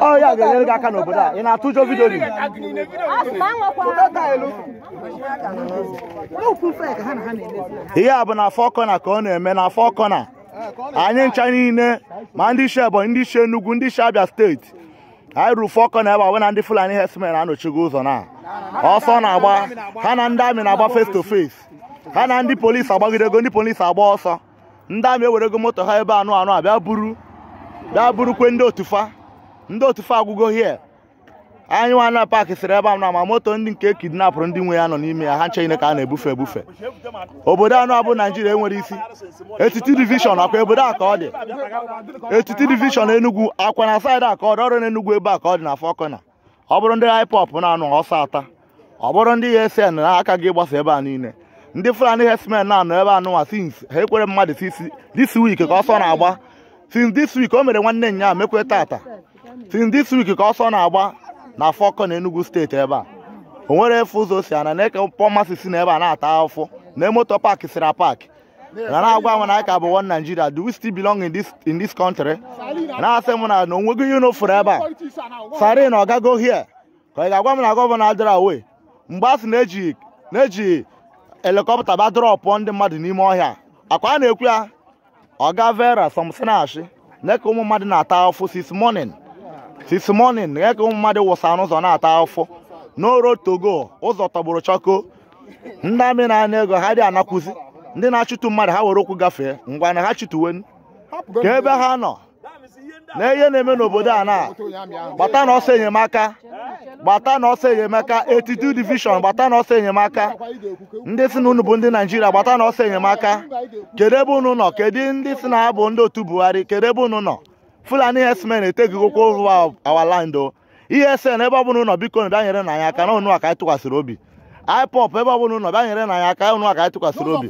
ọ ya ga-enyere gị aka n'obodo a ị atụ ụjọ vidio ihe a bụ na afọ kọna ka ọ na-eme na afọ kọna anyị ncha niile ma ndị isi Ebonyi ndị isi Enugu ndị isi Abia steeti anyị ruru fọ kọna ebe a wena ndị Fulani herdsmen anọchigo ụzọ na ọsọ na-agba ha na ndị amị na-agba face to face ha na ndị polisi agbagidego ndị polisi agba ọsọ ndị amị ego moto ha ebe anụ anụ abịa buru daa burukwe ndị otufa ndị otufa agwụgo hie anyị nwa na paakị sịrị ebe a na ma moto ndị nke kidnapụrụ ndị nwe ya nọ n'ime ya ha ncheghine ka a na-ebufe ebufe obodo anụ abụ naijiria enwere isi etiti divishọn akwa obodo a ka ọ dị etiti divishọn enugwu akwa na saịdị a ka ọrụ n'enugwu ebe a ka ọ dị na fọkọna ọ bụrụ ndị haipop na-anụ ọsọ ata ọ bụrụ ndị esn na-aka gị ịgbasa ebe a niile ndị fulani hesmen na-anọ ebe anụnwa sins ha ekwere mmadụ sisi this week ka ọsọ na-agba since this week o mere nwanne nya mekwe tata since this week ka ọsọ na-agba na fọkọ na Enugu steeti ebe a o nwere efe ụzọ si ana na eke pọmasị si na ebe a na-ata afọ na emoto paaki sira pak na na-agwa m na ka bụ one Nigeria do we still belong in this in this country na-asị m na na onwego ihe ebe a sarin ọgago hie ka ị ga-agwa m na gọvanọ adịra away mgbe a sị na-eji na-eji helikọpta ba drọpụ ndị mmadụ n'ime ọhịa akwa a na-ekwu ya Oga Vera Somsinashi nye ka ụmụ mmadụ na-ata ụfụ this morning this ka ụmụ mmadụ wụsa n'ụzọ na-ata ụfụ n'oro togo ụzọ tọgburu chọko ndị amị na ego ha dị anakwụzi ndị na-achụtụ mmadụ ha were okwu gafee ngwa na ha chụtụwen ka ebe ha nọ na ihe na-eme n'obodo a na gbata na ọsọ enyemaka gbata na ọsọ enyemaka etitu division gbata na ọsọ enyemaka ndị si na unu bụ ndị naijiria gbata na ọsọ enyemaka kedu ebe unu nọ kedu ndị si na abụ ndị otu buhari kedu ebe unu nọ fulani herdsmen etegigokwa over our land o oh. ihe ese na ebe ọ bụla nọ biko na bịa na anyị aka na unu ka anyị tụkwasịrị obi ipop ebe ọ bụla ụnọ bịa nyere na ya aka ụnụ aka tụkwasịrị obi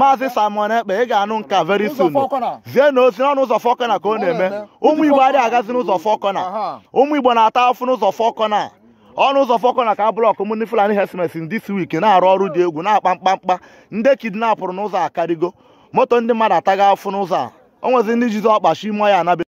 maazị Simon Ekpe ị ga-anụ nka very soon zie na ozi n'ọnụ ụzọ fọkọna ka ọ na-eme ụmụ Igbo adịghị agazi n'ụzọ fọkọna ụmụ Igbo na-ata afụ n'ụzọ fọkọna ọnụ ụzọ fọkọna ka blọk m ndị Fulani herdsmen in this na-arụ ọrụ dị egwu na-akpa mkpamkpa ndị kidnapụrụ n'ụzọ akarịgo moto ndị mmadụ ataghị afụ n'ụzọ a o nwezi ndị jizi ọkpachi ime ya anabe